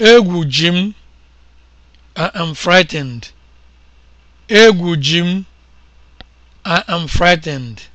Egwu ji m, I am frightened. frightened.